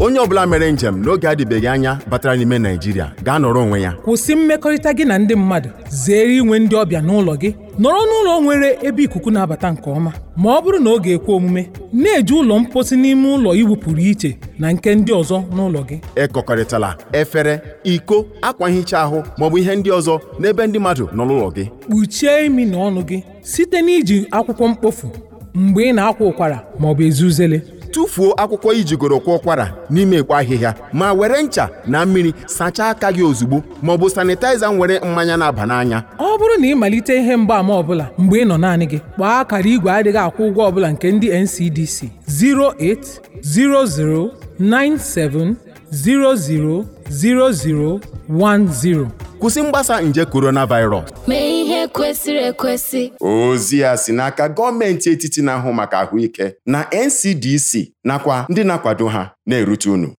onye ọbụla mere njem n'oge adịbeghị anya batara n'ime naijiria gaa nọrọ onwe ya kwụsị mmekọrịta gị na ndị mmadụ zere inwe ndị ọbịa n'ụlọ gị nọrọ n'ụlọ nwere ebe ikuku na-abata nke ọma ma ọ bụrụ na ọ ga-ekwe omume na-eji ụlọ mposi n'ime ụlọ iwu pụrụ iche na nke ndị ọzọ n'ụlọ gị ekọkọrịtala efere iko akwa nhicha ahụ maọbụ ihe ndị ọzọ n'ebe ndị mmadụ nọ n'ụlọ gị kpuchie imi na ọnụ gị site n'iji akwụkwọ mkpofu mgbe ị na-akwa ụkwara maọbụ ezuzele tụfuo akwụkwọ ijigoro kwa ụkwara n'ime ekpo ahịhịa ma were ncha na mmiri sachaa aka gị ozugbo ma ọ bụ sanitaiza nwere mmanya na-aba n'anya ọ bụrụ na ị malite ihe mgbaàmà ọbụla mgbe ị nọ naanị gị gbaa akara igwe adịghị akwụ ụgwọ ọbụla nke ndị NCDC 08009700010 kwụsị mgbasa nje coronavirus ihe kwesịrị ekwesị ozi a si n'aka gọọmenti etiti na-ahụ maka ahụike na NCDC nakwa ndị na-akwado ha na-erute unu